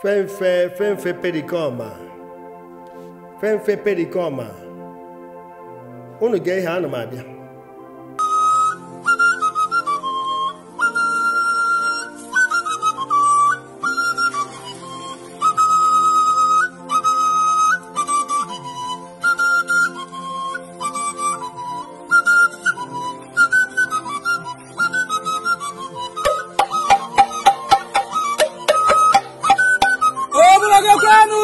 fenfe fenfe perikoma fenfe perikoma unu ga-ehe ana abịa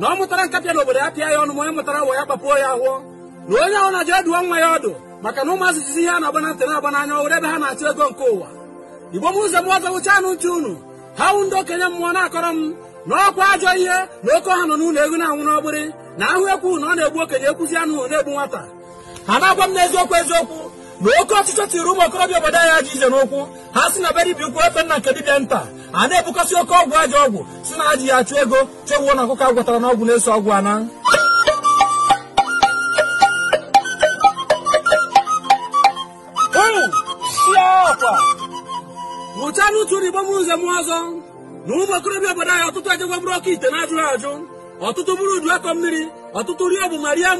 na ọ mụtara nkapịa obodo ya pịa ya ọnụ ma onye mụtara wa ya kpapuo ya ahụọ na onye ahụ na-ajụ edu nwa ya ọdụ maka na ụmụazụ izizi ihe a na-agba na ntị na-agba n'anya ebe ha na-achụ ego nke ụwa igbo m ụzọ m ọzọ wụcha anụ ntị unu ha wụ ndị okenye mmụọ na-akọrọ m na ọkwa ajọ ihe na oke ọha nọ n'ụlọ ego na-anwụ n'ọgbịrị na ahụ ekwu na ọ na-egbu okenye ekwuzi anụ na-egbu nwata ha na-agwa m n'eziokwu eziokwu na oke ọchịchọ tiri ụmụ okorobịa obodo anyị ajọ ije n'ụkwụ ha si na be dibịa ukwu efe nna nke dibịa nta a na-ebukasị oke ọgwụ ajọ ọgwụ si na ajị ya achụ ego chewuo na ọkụkọ agwọtara n'ọgwụ na-eso ọgwụ ana mụcha n'utu n'igbo mụrụ ụzọ mụọ ọzọ na ụmụ okorobịa obodo anyị ọtụtụ ajagwa bụrụ ọkụ ite na ajụ ọtụtụ bụrụ udu akọ mmiri ọtụtụ ri ọbụ ma rie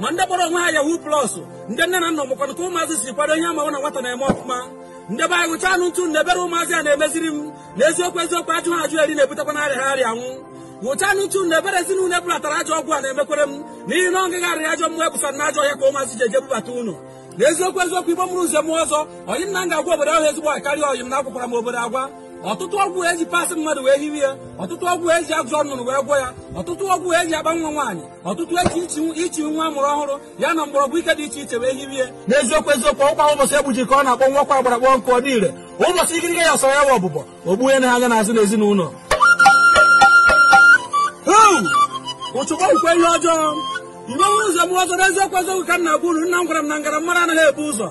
ma ndị kpọrọ onwe ha yahu plọsụ ndị nne na nna mụkwara ka ụmụazị si kwado ihe amawa na nwata na-eme ọfụma ndị be anyị gụcha anụ ntụ na-ebere ụmụazị a na-emeziri m na eziokwu eziokwu ajụ ha ajụ eri na-ebutekwa na arịa ha arịa anwụ gụcha anụ ntụ na ezinụlọ ebulatara ajọ ọgwụ a na-emekwere m n'ihi na ọngaghị arịa ajọ mmụọ ebusara na ajọ ya ka ụmụazị ji eje bubata ụnụ na eziokwu eziokwu igbo mụrụ nze m ọzọ onye m na m ga-agwa obodo ahụ ezigbo akarịa ọyị m na-akwụkwara m obodo agwa ọtụtụ ọgwụ eji pasị mmadụ wee hiwe ya ọtụtụ ọgwụ eji agụ ọnụrụ wee gwọ ya ọtụtụ ọgwụ eji agba nwa nwaanyị ọtụtụ eji ichi nwa mụrụ ọhụrụ ya na mgbọrọgwụ ike dị iche iche wee hiwe ya n'eziokwu eziokwu ọkwa ụbọchị egbuji ka ọ na-akpọ nwa ọkwa agbara kpọ nkụ ọ ụbọchị ikirike ya sọrọ ya wa ọbụbọ ogbu ya na anya n'azụ n'ezinụlọ ụchụkwa ihe ọjọọ iwe nwe ụzọ m ọzọ n'eziokwu eziokwu ka m na-abụ uru nna m gwara m na ngara mara anaghị ebu ụzọ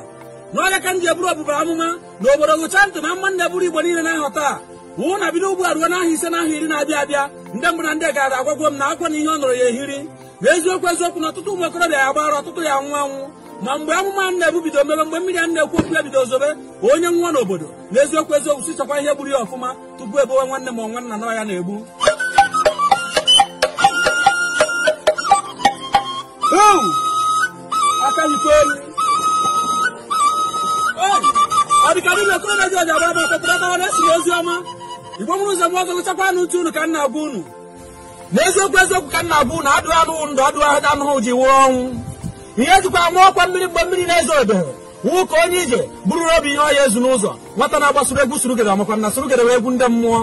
na ọnya ka ji eburu ọbụbara amụma na obodo gụcha ntị na mma buru igbo niile na-ahọ wụ na bido ugbu a na n'ahịa ise iri na-abịa abịa ndị na ndị gara agwagwo m na akwa na ihe ọ ya ehiri na eziokwu eziokwu na ọtụtụ ụmụ okorobịa ya gbara ọtụtụ ya nwụ ma mgbe amụma nna-ebu bido mebe mgbe mmiri a na-ekwu okwu ya bido zobe onye nwụọ n'obodo na eziokwu si sichakwa ihe gburu ya ọfụma tupu ebowe nwanne ma nwanna nọ ya na-egbu aka elu ọdịkadị na-ekoro na jọji agba bụ ọkpọkọrọtawa na-esi ozi ọma igbo mụrụ ụzọ mụọ gụgụchakwa na uche unu ka nna bụ unu n'eziokwu eziokwu ka nna bụ unu adụghị anụghụ ndụ adụghị ahụ anụghụ ji wụọ ọnwụ ihe jikwa amụ ọkwa mmiri mgbe mmiri na-ezo odo wụ ka onye ije bụrụ obi ihe ọya ezu n'ụzọ nwata na-agbasoro egwu surugede makwa na surugede wee egwu ndị mmụọ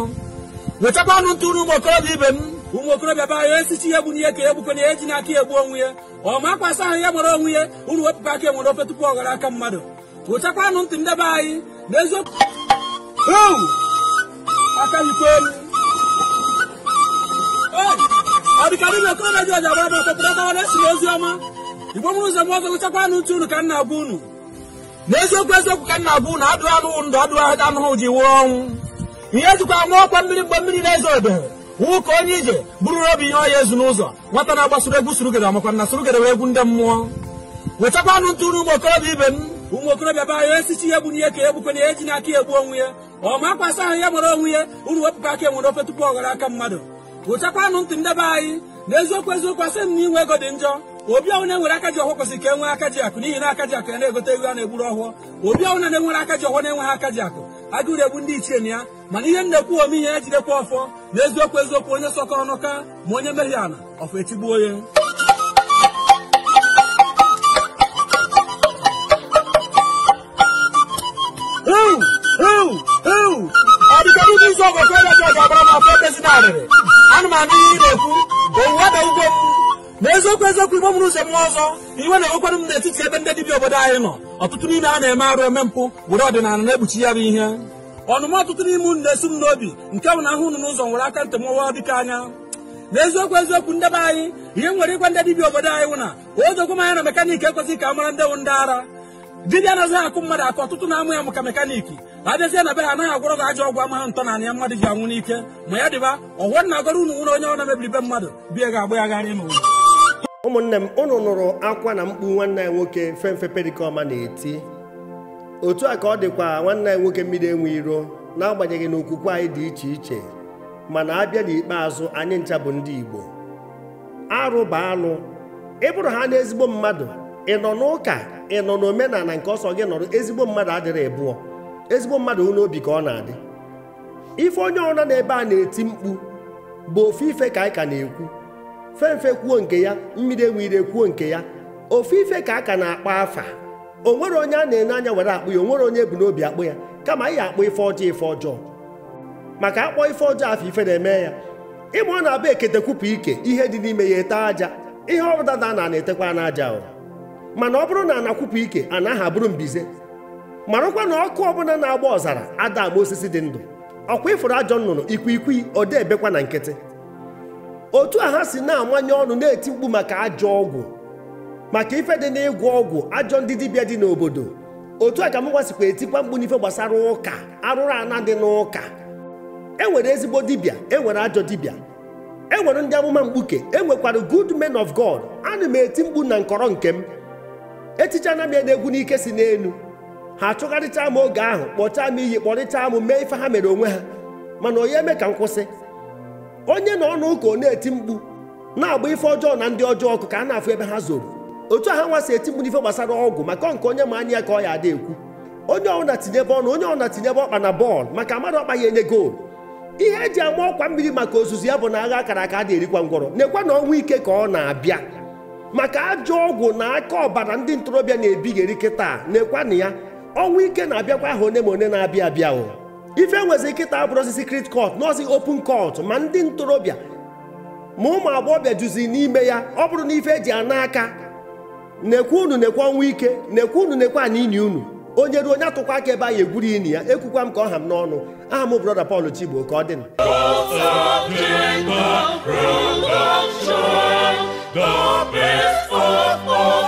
wechakwa anụ ntụ ụmụ okorobịa ibe m ụmụ okorobịa ba ya esichi ihe gburu ihe ka egbukwana ya eji n'aka ya egbu onwe ye ọ ma akwasa ahụ ya mara onwe ya unu wepụkwa aka enwere ofe tupu ọ ghara aka mmadụ wụchakwanụ ntị ndebe anyị na eziokwu aka ikwe elu ọdịkarị na okoro redio ji agbara ọtọtọrọtawa na-esi n'ozi ọma igbo mụrụ ụzọ mọzọ lụchakwanụ ntị unu ka nna abụ unu n'eziokwu eziokwu ka nna abụ unu adụghị anụghị ndụ adụghị anụghụ ji wuo ọnwụ ihe ejikwa nwa ọkwa mmiri mgbe mmiri na-ezo ebere wụ ka onye ije bụrụ obi ihe ọya ezu n'ụzọ nwata na-agbasoro egwu surugere amakwa na surugere egwu ndị mmụọ wetakwanụ ntị unu ụmụ okorobịa ibe m ụmụ okorobịa be anyị esichi ya bụ n'ihe ka egbukwe na ihe ji n'aka egbu onwe ya ọ makwasị ahụ ya mara onwe ya uru wepụkwa aka enwere ofe tupu ọ aka mmadụ pụchakwanụ ntị ndebe anyị na eziokwu eziokwu asị m na inwe ego dị njọ obi ọnwụ na-enwere aka ji ọhụụ kwesịrị ka e nwee aka ji akụ n'ihi na aka ji akụ ya na-egote ego a na-egburu ọhụụ obi ọnwụ na enwere aka ji ọhụụ na-enweghị aka ji akụ agụrụ egbu ndị ichie na ya mana ihe na-ekwu ome ihe ejidekwa ọfọ na eziokwu eziokwu onye sọkọrọ n'ụka ma onye mehie ala ọfọ echigbuo ya site n'ụdị isi ọgụ ka ebeji ọgabara ma afọ ebezina arịrị anụmanụ ihe ị na-ekwu owuwe na ugbo m eziokwu eziokwu igbo mụrụ ụzọ mmụọ ọzọ iwe na-enwekwanụ m n'etiti ebe ndị dibịa obodo anyị nọ ọtụtụ n'ime a na-eme arụ eme mpụ were ọdịnala na egbuchi ya bụ ihe ọnụma ọtụtụ n'ime unu na esu m n'obi nke bụ na ahụ unu n'ụzọ nwere aka ntị mụwa dịka anya n'eziokwu eziokwu ndebe anyị ihe nwere ịgwa ndị dibịa obodo anyị wụ na oziokwu m anya na mekaniki ekwesịghị ka a mara ndewo ndị ara dibịa anaghị akụ mmadụ akụ ọtụtụ na-amụ ya maka mekaniki abịazie na be ha anaghị agwọrọ gị ajọ ọgwụ amaghị ntọ na anya mmadụ ji anwụ n'ike ma ya dịba ọghọ na agọrọ unu nwere onye ọ na-emebiri be mmadụ bie ga agba ya gharị n'ụlọ ụmụnne m ụnụ nụrụ akwa na mkpu nwanne ya nwoke femfe pedikọma na-eti otu a ka ọ dịkwa nwanne ya nwoke mmiri enwe iro n'agbanyeghị na okwukwe anyị dị iche iche mana abịa n'ikpeazụ anyị ncha bụ ndị Igbo arụ bụ anụ ịbụrụ ha n'ezigbo mmadụ ị nọ n'ụka ị nọ n'omenala nke ọsọ gị nọrọ ezigbo mmadụ adịrị bụọ ezigbo mmadụ n'obi ka ọ na-adị ife onye ọrụ n'ebe a na-eti mkpu bụ ofe ife ka anyị ka na-ekwu femfe kwuo nke ya mmiri enwere kwuo nke ya ofe ife ka a ka na-akpa afa o nwere onye a na-enye anya were akpụ ya o nwere onye bu n'obi akpụ ya kama anyị akpụ ife ọjọọ ife ọjọọ maka akpọ ife ọjọọ afọ ife na-eme ya ịma ọ na-abụ ekete kwupụ ike ihe dị n'ime ya ete aja ihe ọ na na-etekwa n'aja mana ọ bụrụ na anakwụpụ ike anaghị abụrụ mbize marakwa na ọkụ ọbụla na-agba ọzara ada osisi dị ndụ ọkwa ịfụrụ ajọ nnụnụ ikwikwii odebekwa na nkịtị otu a ha si na-amanye ọnụ na-eti mkpu maka ajọ ọgwụ maka ife dị n'ịgwọ ọgwụ ajọ ndị dibịa dị n'obodo otu a ka m gwasikwa etikwa mkpu n'ife gbasara ụka arụrụ ana dị n'ụka e nwere ezigbo dibịa e nwere ajọ dibịa e nwere ndị amụma mkpuke e nwekwara good men of God ana m eti mkpu na nkọrọ nke m echiche anaghị ede egwu n'ike si n'elu ha achụgharịcha m oge ahụ kpọchaa m iyi kpọrịcha m mee ife ha mere onwe ha mana onye eme ka m kwụsị onye na ọnụ ụka ọ na-eti mkpu na-agba ife ọjọọ na ndị ọjọọ ọkụ ka a na-afụ ebe ha zoro otu a nwa nwasị eti mkpu n'ife gbasara ọgwụ maka nke onye ma anya ka ọ ya ada ekwu onye ọbụla tinyebe ọnụ onye ọbụla tinyebe ọkpa na bọọlụ maka mmadụ ọkpa ya enye goolu ihe eji ama ọkwa mmiri maka ozuzu ya bụ na agha akara aka a na-erikwa ngwọrọ na-ekwe na ọnwa ike ka ọ na-abịa maka ajọ ọgwụ na aka ọbara ndị ntorobịa na-ebigheri kịta na-ekwana ya ọnwụ ike na-abịakwa aha one ma one na-abịa abịa o ife nwezi kịta osisi secret kọt nọọsị open kọt ma ndị ntorobịa ma ụmụ agbọghọbịa juzi n'ime ya ọ bụrụ na ife eji ana aka na-ekwe unu na-ekwe ọnwụ ike na-ekwe unu na-ekwe ana ini unu onye ruo onye atụkwa aka ebe anyị egwuru ini ya ekwukwa m ka ọ ha m n'ọnụ aha m brọda Paul Chigbo ka ọ the best all.